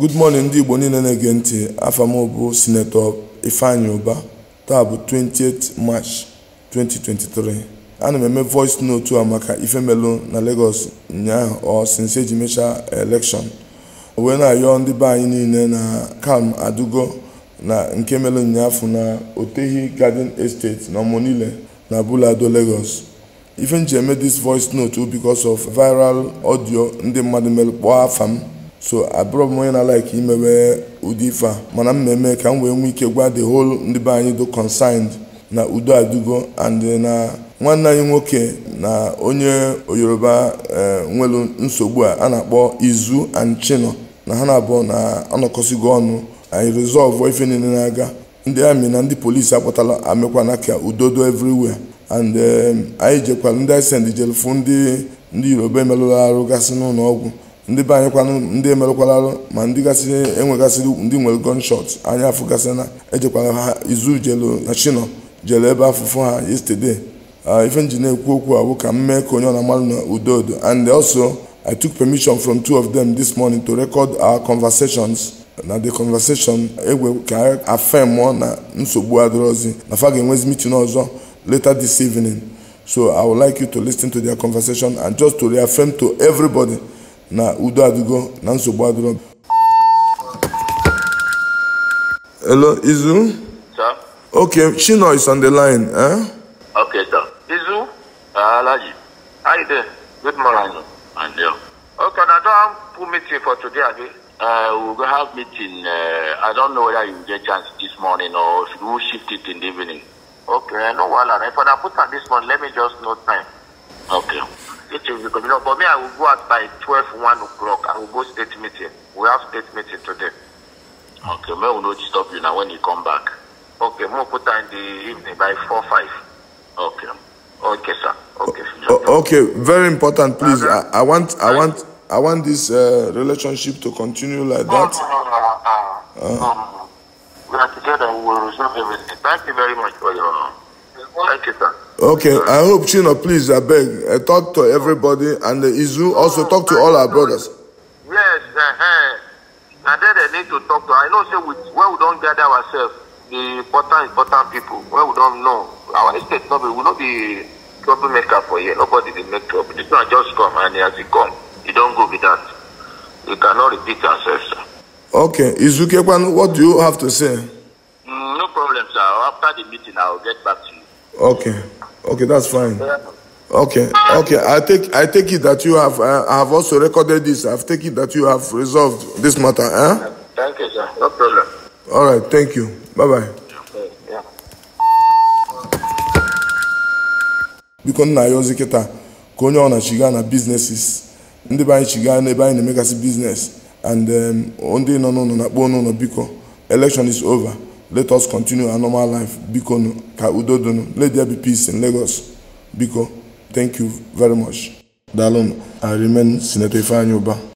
good morning ndị igbo niile na-ege ntị afọ m bụ sinetọ ifeanyi ụba taa bụ 28 march 2023 ana m eme voice note a maka ifemelu na lagos ụnyaahụ ọ sinse eji mechaa elekshọn wee na-ayọ ndị be anyị niile na kam adugo na nke melu ụnyaahụ na otehi garden estate na niile na bulado lagos ife m eme this voice note bikos of viral audio ndị mmadụ melụ kpọọ afa m so abụrọ m onye na-alaik imewe ụdị ife a mana m na-eme ka m wee nwee ike gwa the whole ndị be anyị do consigned na udo adugo and uh, na nwanne anyị nwoke na onye yoruba uh, nwelu nsogbu a a na-akpọ izu and chino na ha na-abụọ na anọkọsigo ọnụ anyị resolve ife niile na-aga ndị amị na ndị polisi akpọtala amekwana ka udodo everywhere and um, anyị jekwara ndị isend jelu ndị ndị yoruba emelụla arụ gasị n'ụlọ ọgwụ ndị be anyịkwanụ ndị emerụkwalarụ ma ndị gasị enwegasịrị ndị nwere gunshot anya afụgasị na ejekwara ha izu jelu na chino jere ebe afụfụ ha yesterday ife nji na-ekwu okwu awụ ka m mee ka onye ọnamalụ na udodo and also i took permission from two of them this morning to record our conversations na the conversation egwe ka afemụọ na nsogbu adịrọzi na fa ga-enwezi meeting ọzọ later this evening so i would like you to ten to their conversation and just to reaffirm to everybody na udo adịgo na nsogbu adịgo hello izu sir okay chino is on the line eh okay sir izu ah, alaji how you doing good morning and there. okay na don pull meeting for today abi uh, we go have meeting uh, i don't know whether you get chance this morning or if you shift it in the evening okay no wahala if i put on this one. let me just note time It is the communal. But me, I will go out by 12, 1 o'clock. I will go state meeting. We have state meeting today. Okay, me will not disturb you now when you come back. Okay, more put time in the evening by 4, 5. Okay. Okay, sir. Okay. okay, very important, please. Uh I, I want, I want, I want this uh, relationship to continue like that. No, no, no, no. Uh. Um, we are together. We will resolve everything. Thank you very much for your. Thank you, sir. Okay, I hope Chino, please, I beg, I uh, talk to everybody and the Izu also talk to all our brothers. Yes, uh, and then they need to talk to. I know, say, we, where we don't gather ourselves, the important, important people, Where we don't know, our estate, no, will not be troublemaker for you. Nobody will make trouble. This man just come and as it come, you don't go with that. You cannot repeat yourself, sir. Okay, Izu Kekwan, what do you have to say? Mm, no problem, sir. After the meeting, I'll get back to you. Okay. Okay, that's fine. Okay. Okay. I take I take it that you have uh, I have also recorded this. I've taken it that you have resolved this matter, eh? Thank you, sir. No problem. All right. Thank you. Bye bye. Yeah. biko nna ya ozi kịta ka onye ọ na-chiga na biznesis ndị be anyị chiga n'ebe anyị na-emegasị biznes and um, ndị nọ n'ụlọ na-akpọ n'ụlọ biko election is over let us continue our normal life biko nu ka udo donu let there be peace in lagos biko thank you very much daalụ i remain senator ifeanyi ụba